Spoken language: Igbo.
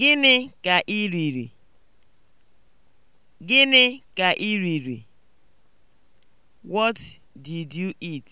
Gịnị ka ị riri? Gịnị ka riri? What did you eat?